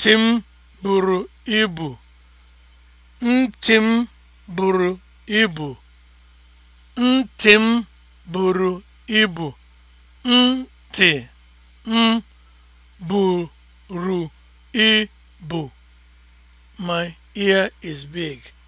Ntị m buru ibu. m buru ibu. buru ibu. My ear is big.